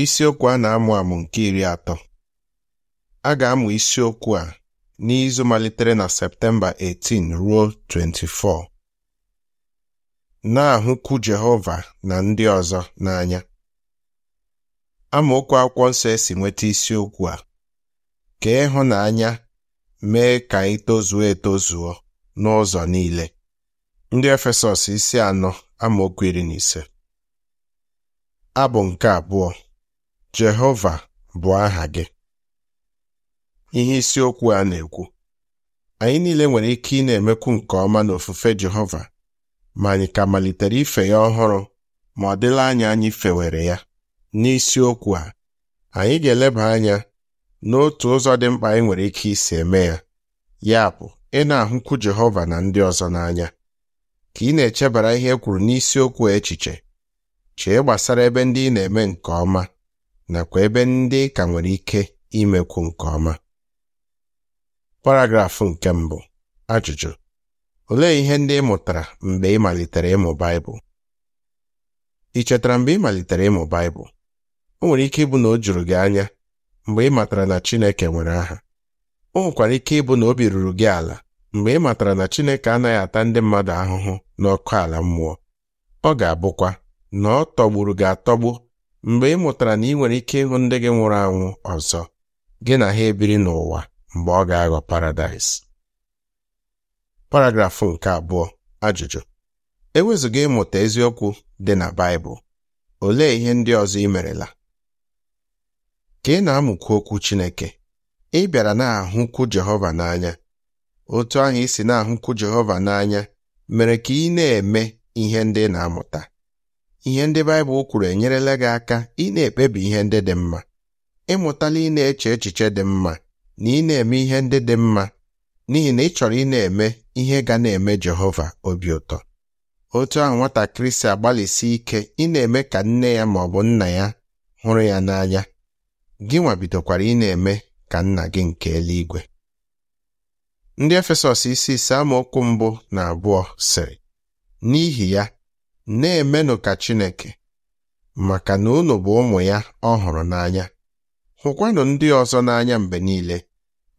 Isiokwu a na-amụ amụ nke iri atọ. A ga-amụ isiokwu a n'izu malitere na Septemba 18 ruo 24. Na-ahụkwu Jehova na ndị ọzọ n'anya. Amaokwu akwụkwọ nsọ e si nweta isiokwu a ka ịhụnanya mee ka anyị etozuo n'ụzọ niile. Ndị Efesọs isi anọ amaokwu iri na ise. Abụ nke abụọ Jehova bụ aha gị ihe isiokwu a na-ekwu anyị niile nwere ike ị na-emekwu nke ọma n'ofufe Jehova ma anyị ka malitere ife ya ọhụrụ ma ọ dịla anya anyị fewere ya n'isiokwu a anyị ga-eleba anya n'otu ụzọ dị mkpa anyị nwere ike isi eme ya ya bụ ị na-ahụkwu Jehova na ndị ọzọ n'anya ka ị na-echebara ihe e kwuru n'isiokwu echiche chee gbasara ebe ndị ị na-eme nke ọma nakwa ebe ndị ka nwere ike imekwu nke ọma paragrafụ nke mbụ ajụjụ olee ihe ndị ị mụtara mgbe ị malitere ịmụ Baịbụl ị chetara mgbe ị malitere ịmụ Baịbụl o nwere ike ịbụ na o juru gị anya mgbe ị matara na Chineke nwere aha o nwekwara ike ịbụ na obi ruru gị ala mgbe ị matara na Chineke anaghị ata ndị mmadụ ahụhụ n'ọkụ ala mmụọ ọ ga-abụkwa na ọ tọgburu gị atọgbu mgbe ị mụtara na ị nwere ike ịhụ ndị gị nwụrụ anwụ ọzọ gị na ha ebiri n'ụwa mgbe ọ ga-aghọ paradaịs paragrafụ nke abụọ ajụjụ ewezuga ịmụta eziokwu dị na Baịbụl olee ihe ndị ọzọ ị merela ka ị na-amụkwu okwu Chineke ị bịara na-ahụkwu Jehova n'anya otu ahụ ị si na-ahụkwu Jehova n'anya mere ka ị na-eme ihe ndị ị na-amụta ihe ndị Baịbụl kwuru enyerela gị aka ị na-ekpebi ihe ndị dị mma ịmụtala ị na-eche echiche dị mma na ị na-eme ihe ndị dị mma n'ihi na ị chọrọ ị na-eme ihe ga na-eme Jehova obi ụtọ otu ahụ nwatakịrị si agbalịsi ike ị na-eme ka nne ya ma ọ bụ nna ya hụrụ ya n'anya gị nwabidokwara ị na-eme ka nna gị nke eluigwe ndị Efesọs isi ise amaokwu mbụ na abụọ sịrị n'ihi ya na-emenụ ka Chineke maka na unu bụ ụmụ ya ọ hụrụ n'anya hụkwanụ ndị ọzọ n'anya mgbe niile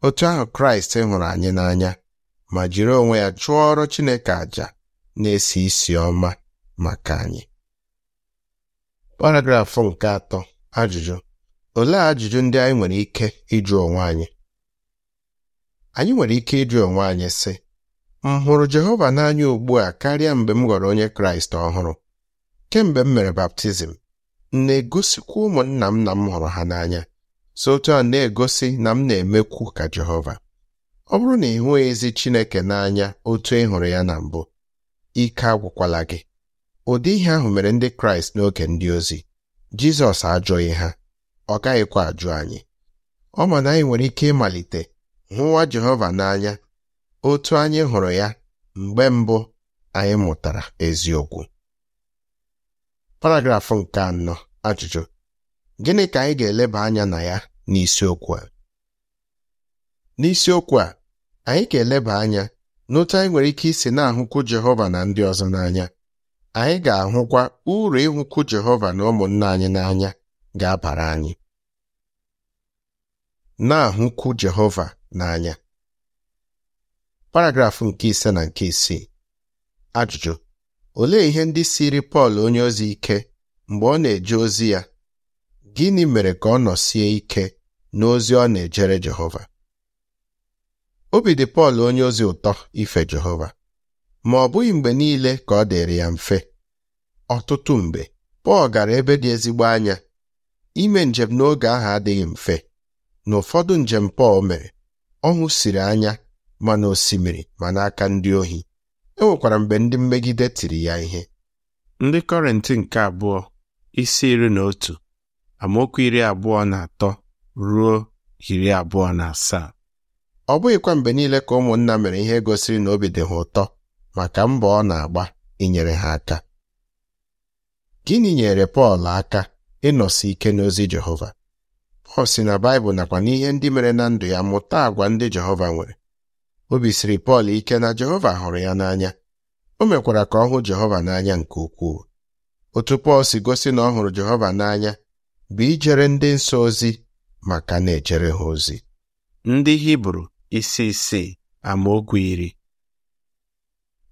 otu ahụ Kraịst hụrụ anyị n'anya ma jiri onwe ya ọrụ Chineke àjà na-esi isi ọma maka anyị paragrafụ nke atọ ajụjụ olee ajụjụ ndị anyị nwere ike ịjụ onwe anyị anyị nwere ike ịjụ onwe anyị sị m hụrụ Jehova n'anya ugbu a karịa mgbe m ghọrọ onye Kraịst ọhụrụ kemgbe m mere baptizim m na-egosikwa ụmụnna m na m hụrụ ha n'anya so otu a na-egosi na m na-emekwu ka Jehova ọ bụrụ na ị hụghị ezi Chineke n'anya otu ị hụrụ ya na mbụ ike agwụkwala gị ụdị ihe ahụ mere ndị Kraịst n'oge ndị ozi Jizọs ajụghị ha ọ gaghịkwa ajụ anyị ọ ma na anyị nwere ike ịmalite hụwa Jehova n'anya otu anyị hụrụ ya mgbe mbụ anyị mụtara eziokwu paragrafụ nke anọ ajụjụ gịnị ka anyị ga-eleba anya na ya n'isiokwu a n'isiokwu a anyị ga-eleba anya n'otu anyị nwere ike isi na-ahụkwu Jehova na ndị ọzọ n'anya anyị ga-ahụkwa uru ịhụkwu Jehova na ụmụnna anyị n'anya ga-abara anyị na-ahụkwu Jehova n'anya paragrafụ nke ise na nke isii ajụjụ olee ihe ndị siri Pọl onye ozi ike mgbe ọ na-eje ozi ya gịnị mere ka ọ nọsie ike n'ozi ọ na-ejere Jehova obi dị Pọl onye ozi ụtọ ife Jehova ma ọ bụghị mgbe niile ka ọ dịrị ya mfe ọtụtụ mgbe Pọl gara ebe dị ezigbo anya ime njem n'oge ahụ adịghị mfe n'ụfọdụ njem Pọl mere ọṅụ siri anya ma na osimiri ma n'aka ndị ohi e nwekwara mgbe ndị mmegide tiri ya ihe ndị kọrịntị nke abụọ isi iri na otu amaokwu iri abụọ na atọ ruo iri abụọ na asaa ọ bụghịkwa mgbe niile ka ụmụnna mere ihe gosiri na obi dị ha ụtọ maka mbọ ọ na-agba inyere ha aka gịnị nyere Pọl aka ịnọsi ike n'ozi Jehova Pọl si na Baịbụl nakwa n'ihe ndị mere na ndụ ya mụta àgwà ndị Jehova nwere obi siri Pọl ike na Jehova hụrụ ya n'anya o mekwara ka ọ hụ Jehova n'anya nke ukwuu otu Pọl si gosi na ọ hụrụ Jehova n'anya bụ ijere ndị nsọ ozi maka na-ejere ha ozi ndị Hibru isi ama amaokwu iri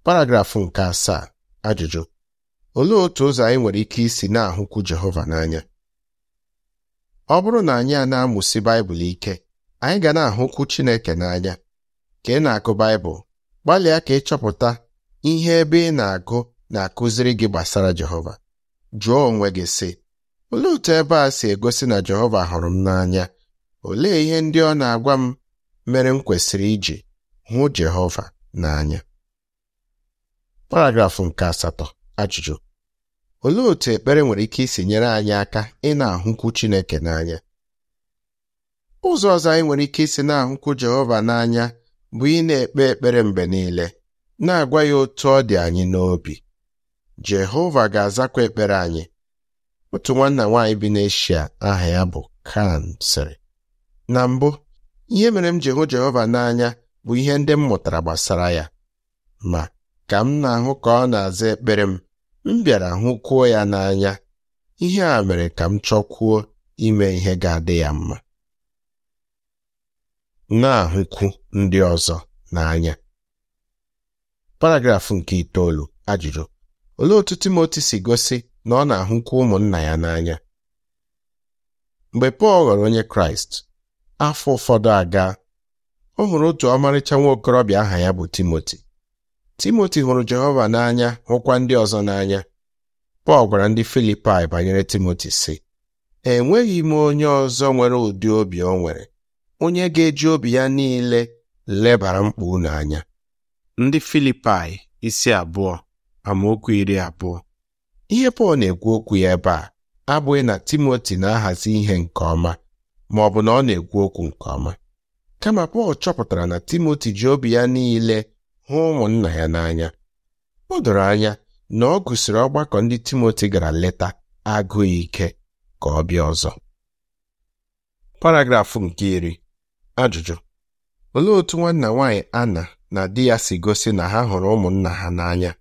paragrafụ nke asaa ajụjụ olee otu ụzọ anyị nwere ike isi na-ahụkwu Jehova n'anya ọ bụrụ na anyị a na-amụsi Baịbụl ike anyị ga na-ahụkwu Chineke n'anya ka ị na-agụ Baịbụl gbalịa ka ị chọpụta ihe ebe ị na-agụ na-akụziri gị gbasara Jehova jụọ onwe gị sị olee otu ebe a si egosi na Jehova hụrụ m n'anya olee ihe ndị ọ na-agwa m mere m kwesịrị iji hụ Jehova n'anya paragrafụ nke asatọ ajụjụ olee otu ekpere nwere ike isi nyere anyị aka ị na-ahụkwu Chineke n'anya ụzọ ọzọ anyị nwere ike isi na-ahụkwu Jehova n'anya bụ ị na-ekpe ekpere mgbe niile na-agwa ya otu ọ dị anyị n'obi Jehova ga-azakwa ekpere anyị otu nwanna nwaanyị bi n'Eshia aha ya bụ Kan sịrị na mbụ ihe mere m ji hụ Jehova n'anya bụ ihe ndị m mụtara gbasara ya ma ka m na-ahụ ka ọ na-aza ekpere m m bịara hụkwuo ya n'anya ihe a mere ka m chọkwuo ime ihe ga-adị ya mma na-ahụkwu ndị ọzọ n'anya paragrafụ nke itoolu ajụjụ olee otu Timoti si gosi na ọ na-ahụkwu ụmụnna ya n'anya mgbe Pọl ghọrọ onye Kraịst afọ ụfọdụ aga ọ hụrụ otu ọmarịcha nwa okorobịa aha ya bụ Timoti Timoti hụrụ Jehova n'anya hụkwa ndị ọzọ n'anya Pọl gwara ndị Filipaị banyere Timoti sị enweghị m onye ọzọ nwere ụdị obi o nwere onye ga-eji obi ya niile lebara mkpa unu anya ndị Filipaị isi abụọ amaokwu iri abụọ ihe Pọl na-ekwu okwu ya ebe a abụghị na Timoti na-ahazi ihe nke ọma ma ọ bụ na ọ na-ekwu okwu nke ọma kama Pọl chọpụtara na Timoti ji obi ya niile hụ ụmụnna ya n'anya o doro anya na ọ gụsịrị ọgbakọ ndị Timoti gara leta agụghị ike ka ọ bịa ọzọ paragrafụ nke iri Ajụjụ: Olee otú nwanna nwanyị ana na di ya si gosi na ha hụrụ ụmụnna ha n'anya?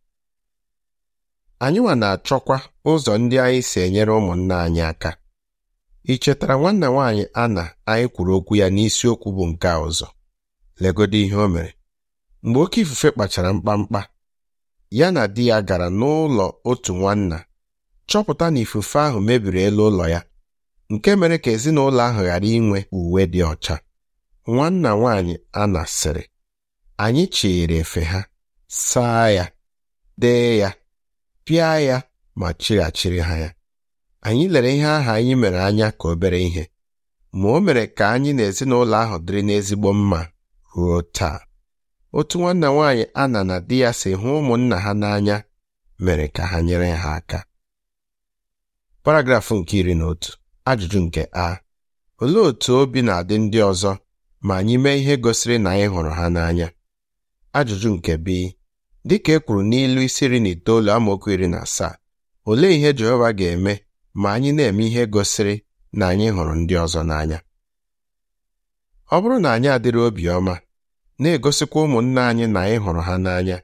Anyịnwa na-achọkwa ụzọ ndị anyị si enyere ụmụnna anyị aka. Ị chetara nwanna nwaanyị ana anyị kwuru okwu ya n'isiokwu bụ nke a ọzọ? legodo ihe o mere. Mgbe oké ifufe kpachara mkpamkpa, ya na di ya gara n'ụlọ otu nwanna chọpụta na ifufe ahụ mebiri elu ụlọ ya nke mere ka ezinụlọ ahụ ghara inwe uwe dị ọcha nwanna nwaanyị Anna sịrị anyị chịrị efe ha saa ya dee ya pịa ya ma chịghachiri ha ya anyị lere ihe aha anyị mere anya ka obere ihe ma o mere ka anyị na ezinụlọ ahụ dịrị n'ezigbo mma ruo taa otu nwanna nwaanyị ana na di ya si hụ ụmụnna ha n'anya mere ka ha nyere ha aka paragrafụ nke iri na otu ajụjụ nke a olee otu obi na-adị ndị ọzọ ma anyị mee ihe gosiri na anyị hụrụ ha n'anya ajụjụ nke bi dịka e kwuru n'ilu isi na itoolu amaokwu iri na asaa olee ihe Jehova ga-eme ma anyị na-eme ihe gosiri na anyị hụrụ ndị ọzọ n'anya ọ bụrụ na anyị adịrị obiọma na-egosikwa ụmụnne anyị na anyị hụrụ ha n'anya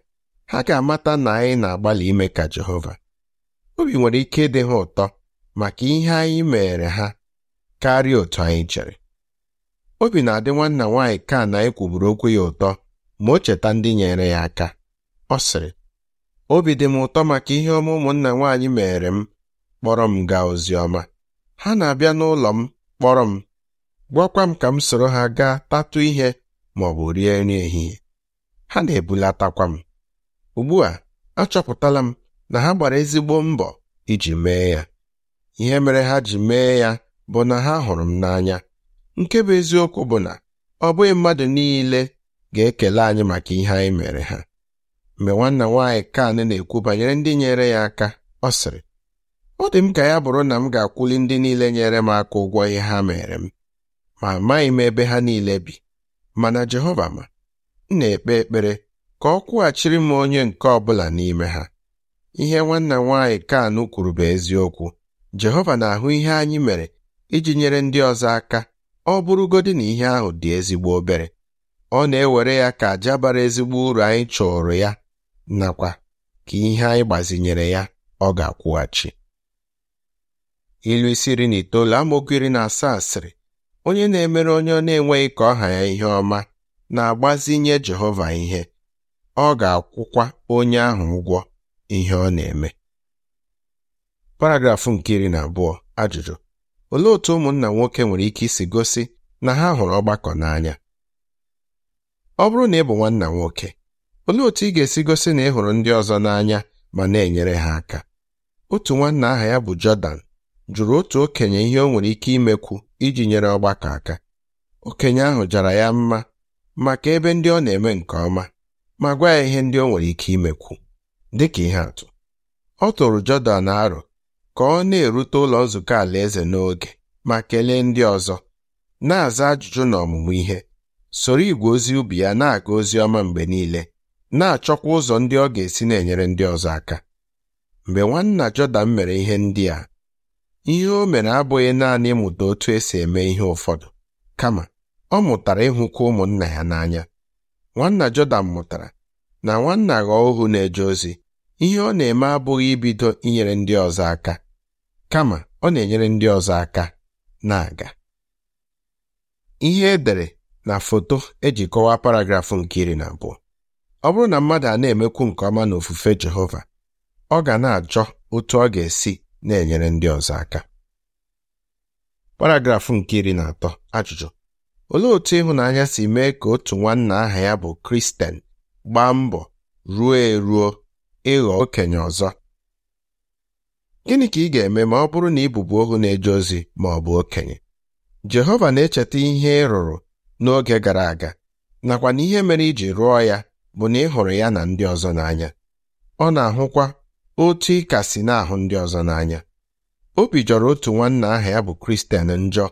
ha ga-amata na anyị na-agbalị ime ka Jehova obi nwere ike ịdị ha ụtọ maka ihe anyị meere ha karịa otu anyị chere obi na-adị nwanna nwaanyị ka na ekwuburu okwu ya ụtọ ma o cheta ndị nyere ya aka ọ sịrị obi dị m ụtọ maka ihe ọma ụmụnna nwaanyị mere m kpọrọ m gaa ozi ọma ha na-abịa n'ụlọ m kpọrọ m gwakwa m ka m soro ha gaa tatụ ihe ma ọ bụ rie nri ehihie ha na-ebulatakwa m ugbu a achọpụtala m na ha gbara ezigbo mbọ iji mee ya ihe mere ha ji mee ya bụ na ha hụrụ m n'anya nke bụ eziokwu bụ na ọ bụghị mmadụ niile ga-ekele anyị maka ihe anyị mere ha mgbe nwanna nwaanyị kan na-ekwu banyere ndị nyere ya aka ọ sịrị ọ dị m ka ya bụrụ na m ga-akwụli ndị niile nyere m aka ụgwọ ihe ha mere m ma amaghị m ebe ha niile bi mana Jehova ma m na-ekpe ekpere ka ọ kwụghachiri m onye nke ọ bụla n'ime ha ihe nwanna nwaanyị kan kwuru bụ eziokwu Jehova na-ahụ ihe anyị mere iji nyere ndị ọzọ aka ọ bụrụgodị na ihe ahụ dị ezigbo obere ọ na-ewere ya ka aja bara ezigbo uru anyị chọrọ ya nakwa ka ihe anyị gbazinyere ya ọ ga-akwụghachi ilu isi iri na itoolu amokiri na asaa sịrị onye na-emere onye ọ na-enweghị ka ọha ya ihe ọma na-agbazinye Jehova ihe ọ ga-akwụkwa onye ahụ ụgwọ ihe ọ na-eme paragrafụ nke iri na abụọ ajụjụ Olee otú ụmụnna nwoke nwere ike isi gosi na ha hụrụ ọgbakọ n'anya ọ bụrụ na ị bụ nwanna nwoke olee otú ị ga-esi gosi na ị hụrụ ndị ọzọ n'anya ma na-enyere ha aka otu nwanna aha ya bụ Jọdan jụrụ otu okenye ihe o nwere ike imekwu iji nyere ọgbakọ aka okenye ahụ jara ya mma maka ebe ndị ọ na-eme nke ọma ma gwa ya ihe ndị o nwere ike imekwu dịka ihe atụ ọ tụrụ Jọdan arụ ka ọ na-erute ụlọ nzukọ alaeze n'oge ma kelee ndị ọzọ na-aza ajụjụ na ọmụmụ ihe soro igwe ozi ubi ya na-aga ozi ọma mgbe niile na-achọkwa ụzọ ndị ọ ga-esi na-enyere ndị ọzọ aka mgbe nwanna Jọdan mere ihe ndị a ihe o mere abụghị naanị ịmụta otu esi eme ihe ụfọdụ kama ọ mụtara ịhụkwa ụmụnna ya n'anya nwanna Jọdan mụtara na nwanna ghọọ ohu na-eje ozi ihe ọ na-eme abụghị ibido inyere ndị ọzọ aka kama ọ na-enyere ndị ọzọ aka na-aga ihe edere na foto eji kọwaa paragrafụ nke iri na abụọ ọ bụrụ na mmadụ a na-emekwu nke ọma na ofufe Jehova ọ ga na-achọ otu ọ ga-esi na-enyere ndị ọzọ aka paragrafụ nke iri na atọ ajụjụ olee otu ịhụnanya si mee ka otu nwanna aha ya bụ Kristen gbaa mbọ ruo eruo ịghọ okenye ọzọ gịnị ka ị ga-eme ma ọ bụrụ na ị bụbu ohu na-eje ozi ma ọ bụ okenye Jehova na-echeta ihe ị rụrụ n'oge gara aga nakwa na ihe mere iji rụọ ya bụ na ị hụrụ ya na ndị ọzọ n'anya ọ na-ahụkwa otu ị ka si na-ahụ ndị ọzọ n'anya obi jọrọ otu nwanna aha ya bụ Kristian njọ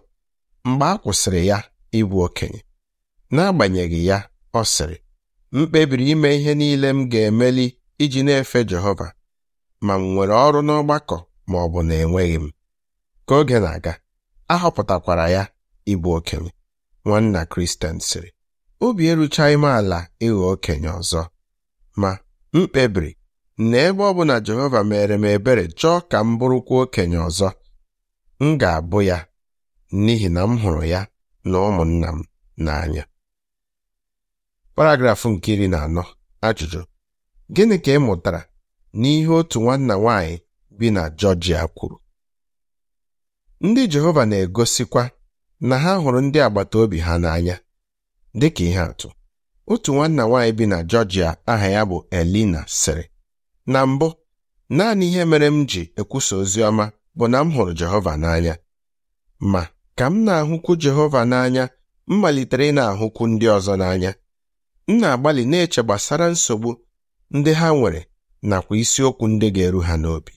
mgbe a kwụsịrị ya ịbụ okenye n'agbanyeghị ya ọ sịrị m kpebiri ime ihe niile m ga-emeli iji na-efe Jehova ma m nwere ọrụ n'ọgbakọ ma ọ bụ na enweghị m ka oge na-aga ahọpụtakwara ya ịbụ okenye nwanna Kristen sịrị obi eruchaghị m ala ịghọ okenye ọzọ ma m kpebiri na ebe ọ bụla Jehova mere m ebere chọọ ka m bụrụkwa okenye ọzọ m ga-abụ ya n'ihi na m hụrụ ya na ụmụnna m n'anya paragrafụ nke iri na anọ ajụjụ gịnị ka ị mụtara n'ihe otu nwanna nwanyị bi na Georgia kwuru ndị Jehova na-egosikwa na ha hụrụ ndị agbata obi ha n'anya dịka ihe atụ otu nwanna nwaanyị bi na Georgia aha ya bụ Elina sịrị na mbụ naanị ihe mere m ji ekwusa ozi ọma bụ na m hụrụ Jehova n'anya ma ka m na-ahụkwu Jehova n'anya m malitere ị na-ahụkwu ndị ọzọ n'anya m na-agbalị na-eche gbasara nsogbu ndị ha nwere nakwa isiokwu ndị ga-eru ha n'obi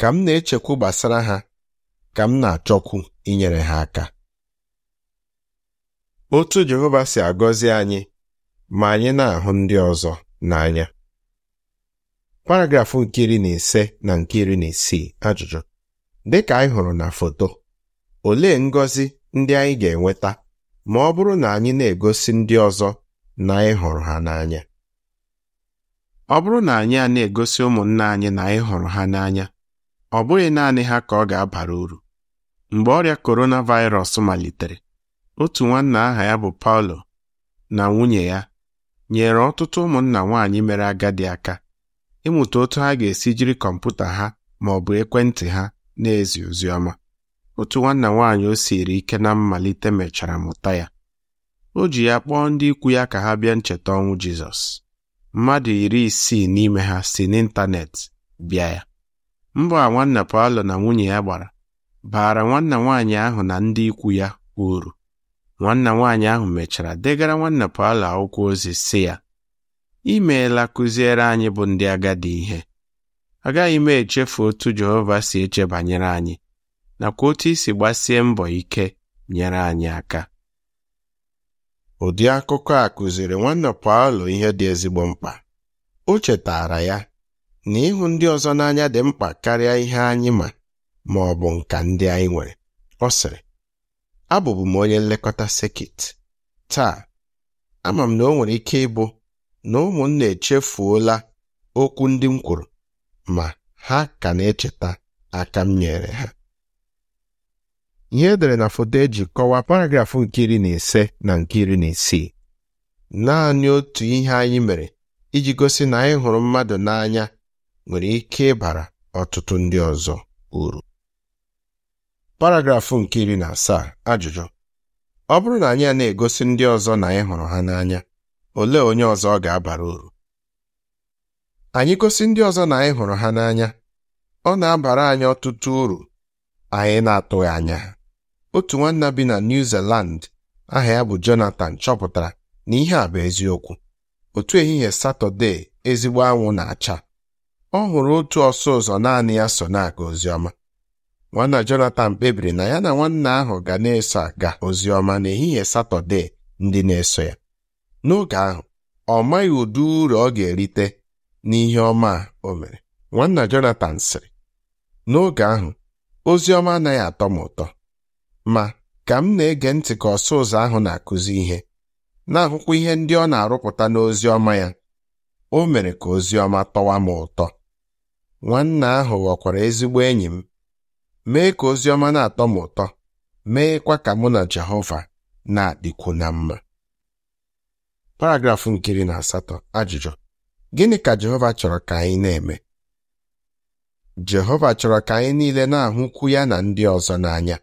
ka m na-echekwu gbasara ha ka m na-achọkwu inyere ha aka otu Jehova si agọzi anyị ma anyị na-ahụ ndị ọzọ n'anya paragrafụ nke iri na ise na nke iri na isii ajụjụ dị ka anyị hụrụ na foto olee ngọzi ndị anyị ga-enweta ma ọ bụrụ na anyị na-egosi ndị ọzọ na anyị hụrụ ha n'anya ọ bụrụ na anyị a na-egosi ụmụnna anyị na anyị hụrụ ha n'anya ọ bụghị naanị ha ka ọ ga-abara uru mgbe ọrịa coronavirus malitere otu nwanna aha ya bụ Paulo na nwunye ya nyere ọtụtụ ụmụnna nwaanyị mere agadi aka ịmụta otu ha ga-esi jiri kọmputa ha ma ọ bụ ekwentị ha na-ezi ozi ọma otu nwanna nwaanyị o siri ike na mmalite mechara mụta ya o ji ya kpọọ ndị ikwu ya ka ha bịa ncheta ọnwụ Jizọs mmadụ iri isii n'ime ha si n'ịntanetị bịa ya mbọ a nwanna Paulo na nwunye ya gbara baara nwanna nwaanyị ahụ na ndị ikwu ya uru nwanna nwaanyị ahụ mechara degara nwanna Paulo akwụkwọ ozi si ya imeela kụziere anyị bụ ndị agadi ihe agaghị m echefu otu Jehova si eche banyere anyị nakwa otu isi gbasie mbọ ike nyere anyị aka Ụdị akụkọ a kụziri nwanne Paolo ihe dị ezigbo mkpa. O chetaara ya na ịhụ ndị ọzọ n'anya dị mkpa karịa ihe anyị ma ma ọ bụ nka ndị anyị nwere. Ọ sịrị, abụbu m onye nlekọta sekit. Taa, ama m na o nwere ike ịbụ na ụmụnna echefuola okwu ndị m kwuru ma ha ka na-echeta aka m nyere ha. ihe edere na foto eji kọwaa paragrafụ nke iri na ise na nke iri na isii naanị otu ihe anyị mere iji gosi na anyị hụrụ mmadụ n'anya nwere ike ịbara ọtụtụ ndị ọzọ uru paragrafụ nke iri na asaa ajụjụ ọ bụrụ na anyị a na-egosi ndị ọzọ na anyị hụrụ ha n'anya olee onye ọzọ ọ ga-abara uru anyị gosi ndị ọzọ na anyị hụrụ ha n'anya ọ na-abara anyị ọtụtụ uru anyị na-atụghị anya ha otu nwanna bi na New Zealand aha ya bụ Jonathan chọpụtara na ihe a bụ eziokwu otu ehihie Satọde ezigbo anwụ na-acha ọ hụrụ otu ọsọ ụzọ naanị ya so na-aga oziọma nwanna Jonathan kpebiri na ya na nwanna ahụ ga na-eso aga oziọma n'ehihie Satọde ndị na-eso ya n'oge ahụ ọ maghị ụdị uru ọ ga-erite n'ihe ọma o mere nwanna Jonathan sịrị n'oge ahụ oziọma anaghị atọ m ụtọ ma ka m na-ege ntị ka ọsụ ụzọ ahụ na-akụzi ihe na-ahụkwa ihe ndị ọ na-arụpụta n'ozi ọma ya o mere ka ozi ọma tọwa m ụtọ nwanna ahụ ghọkwara ezigbo enyi m mee ka ozi ọma na-atọ m ụtọ meekwa ka mụ na Jehova na-adịkwu na mma paragrafụ nkiri na asatọ ajụjụ gịnị ka Jehova chọrọ ka anyị na-eme Jehova chọrọ ka anyị niile na-ahụkwu ya na ndị ọzọ n'anya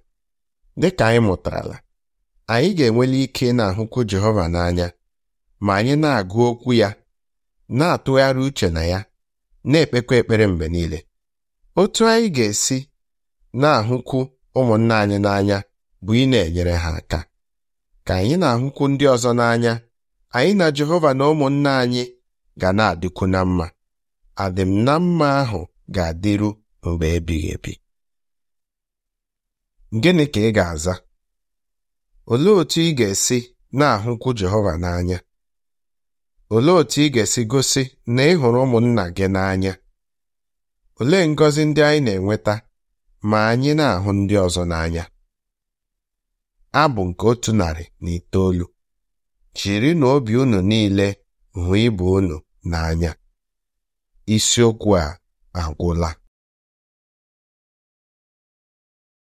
Dịka anyị mụtarala, anyị ga enwele ike na-ahụkwu Jehova n'anya ma anyị na-agụ okwu ya na-atụgharị uche na ya na-ekpekwa ekpere mgbe niile otu anyị ga-esi na-ahụkwu ụmụnna anyị n'anya bụ ị na-enyere ha aka ka anyị na-ahụkwu ndị ọzọ n'anya anyị na Jehova na ụmụnna anyị ga na-adịkwu na mma adịm na mma ahụ ga-adịru mgbe ebighị ebi Gịnị ka ị ga-aza? Olee otú ị ga-esi na-ahụkwu Jehova n'anya? Olee otú ị ga-esi gosi na ị hụrụ ụmụnna gị n'anya? Olee ngọzi ndị anyị na-enweta ma anyị na-ahụ ndị ọzọ n'anya? Abụ nke otu narị na itoolu chiri na obi unu niile hụ ibe unu n'anya isiokwu a agwụla